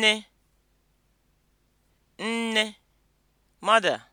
nne nne mother